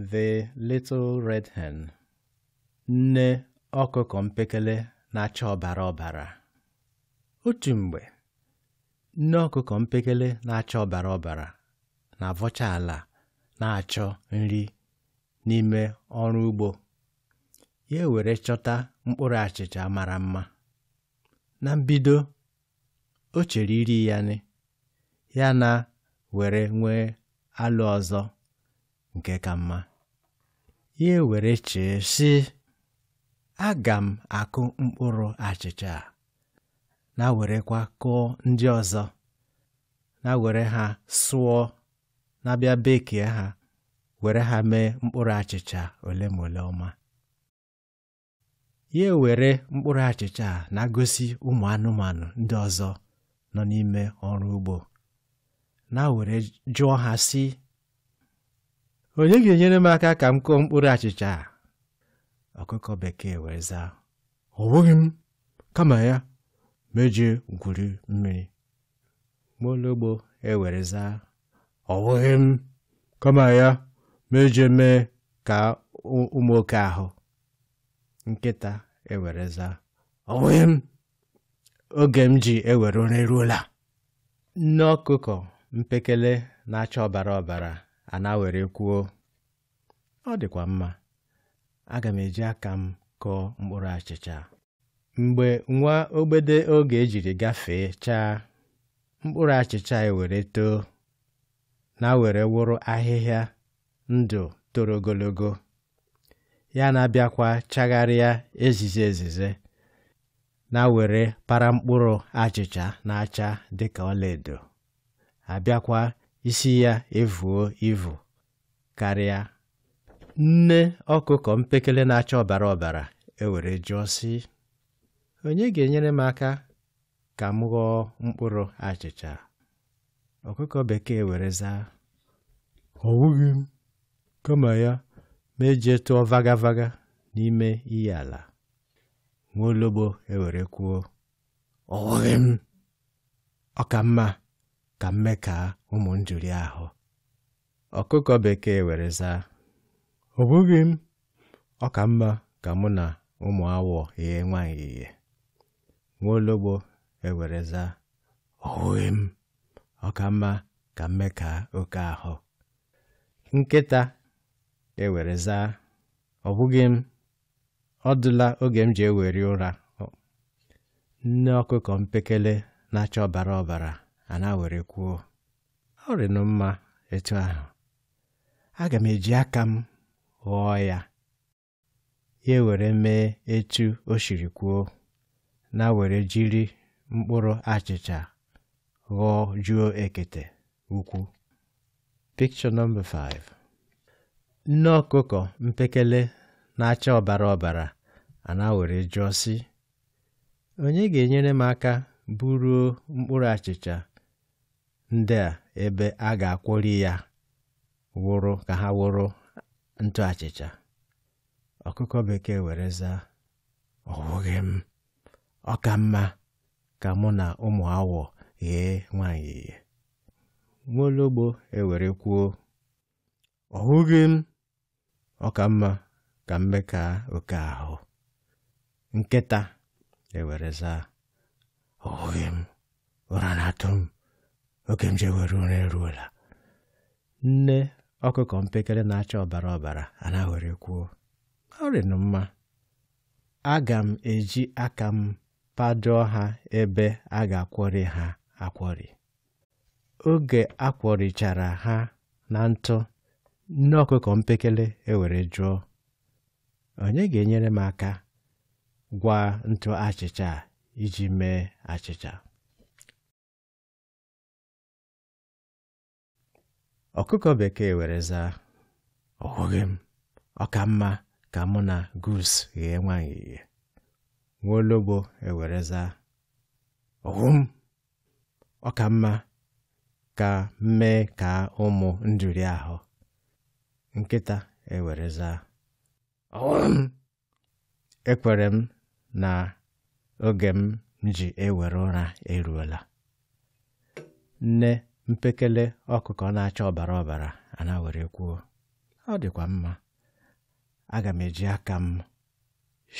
The Little Red Hen nne ọkụkọ mpekele na-acha ọbara ọbara otu mgbe nne ọkụkọ mpekele na-acha ọbara ọbara na-avọcha ala na-achọ nri n'ime ọrụ ugbo ya were chọta mkpụrụ achịcha mara mma na mbido o chere iri ya nị ya na were nwee alụ ọzọ nke ka mma ya ewere chee sị aga m akụ mkpụrụ achịcha a na-werekwa kụọ ndị ọzọ na-were ha sụọ na-abịa bekee ha were ha mee mkpụrụ achịcha ole ma ole ọma ya were mkpụrụ achịcha a na-agosi ụmụ anụmanụ ndị ọzọ nọ n'ime ọrụ ugbo na-were jụọ ha sị onye ga-enyere m aka ka m kụọ mkpụrụ achịcha a ọkụkọ bekee wee zaa ọ bụghị kama ya mejie gwuri mmiri mologbo ewere zaa ọ bụghị m kama ya mejie e mee ka ụmụ oke ahụ nkịta ewere zaa ọ bụghị m oge m ji ewere ụra eruola nne ọkụkọ mpekele na-acha ọbara ọbara ana were kwuo ọ dịkwa mma aga m eji aka m kọọ mkpụrụ achịcha mgbe nwa ogbede oge ejiri gafee chaa mkpụrụ achịcha ewere too na were wụrụ ahịhịa ndụ toro ogologo ya na-abịakwa chagharịa ezize ezize na were para mkpụrụ achịcha na-acha dịka ọlaedo abịakwa isi ya evuo ivu karịa nne ọkụkọ mpekele na-acha ọbara ọbara ewere jụọ sị onye ga-enyere m aka ka m ghọọ mkpụrụ achịcha ọkụkọ bekee were zaa ọ wụghị m kama ya ma eji tụọ vagavaga n'ime iyi ala nwaologbo ewere kwuo ọ wụghị m ọ ka mma ka mmeka ụmụ njụrụ ahụ ọkụkọ bekee were zaa ọ bụghị m ọ ka mma ka mụ na ụmụ awọ ihe nwaanyị ihe nwaologbo ewere zaa ọ m ọ ka mma ka mmeka oke ahụ nkịta ewere zaa ọ bụghị m ọ dụla oge m ji eweri ụra nne ọkụkọ mpekele na-acha ọbara ọbara a na-were kwuo ọ rịnụ mma etu ahụ aga m eji aka m ghọọ ya ya were mee etu o siri kwuo na-were jiri mkpụrụ achịcha ghọọ jụọ ekete ukwu picture 5 nne ọkụkọ mpekele na-acha ọbara ọbara a na-were jụọ sị onye ga-enyere m aka buruo mkpụrụ achịcha ndị a ebe a ga-akwọri ya wụrụ ka ha wụrụ ntụ achịcha ọkụkọ bekee were zaa ọwụghị m ọ ka mma ka mụ na ụmụ awọ ghee nwanyị ihe nwaologbo ewere kwuo ọwụghị m ọ ka mma ka oke ahụ nkịta ewere zaa ọwụghị m ụra na-atụ m oke mjegwe nri eruola nne ọkụkọ mpekele na-acha ọbara ọbara anaghịrị kwuo ọrịnụ mma aga m eji aka m padoo ha ebe a ga akwọrị ha akwọrị. oge akwọrichara ha na ntụ nne ọkụkọ mpekele ewere jụọ onye ga-enyere m aka gwa ntụ achịcha iji mee achịcha ọkụkọ bekee were zaa a m ọ ka mụ na gus ghee nwaanyị ihe nwaologbo ewere zaa ọhụ m ọ ka mma ka mmee e ka ụmụ nduri ahụ nkịta ewere zaa m ekwere m na oge m ji ewere ụra eruola nne mpekele ọkụkọ na-acha ọbara ọbara ana were kwuo ọ dịkwa mma aga m eji aka m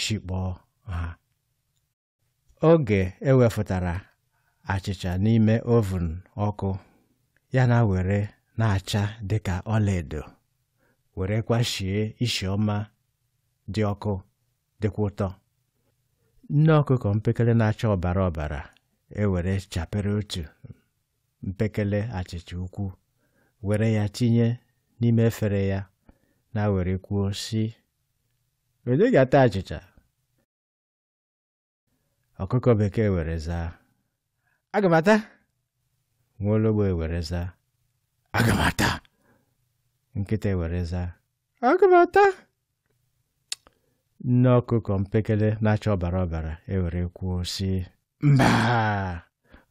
shikpọọ ha oge ewefụtara achịcha n'ime ovun ọkụ ya na were na-acha dịka ọlaedo were kwashie isi ọma dị ọkụ dịkwa ụtọ nne ọkụkọ mpekele na-acha ọbara ọbara ewere chapere otu mpekele achịcha ukwu were ya tinye n'ime efere ya na were kwuo sị onye ga-ata achịcha ọkụkọ bekee were zaa aga m ata nwaologbo ewere zaa aga ata nkịta were zaa aga e ata nne ọkụkọ mpekele na-acha ọbara ọbara ewere kwuo sị mba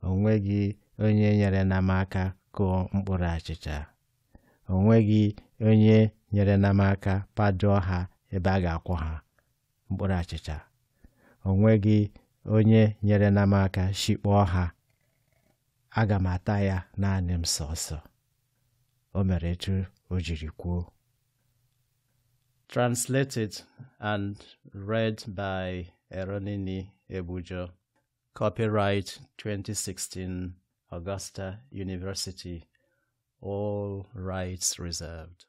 onweghị onye nyere m aka kụọ mkpụrụ achịcha. O nweghị onye nyere m aka ha ebe a ga-akwọ ha mkpụrụ achịcha. O nweghị onye nyere namaka aka shikpọọ ha. Aga m ata ya naanị m sọsọ. O mere etu o jiri kwuo. Translated and read by Eronini Ebujo. Copyright 2016. Augusta University. All rights reserved.